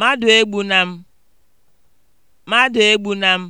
Mmadụ egbuna m! Mmadụ egbuna m!